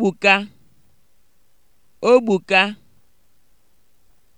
Ogbuka, ogbuka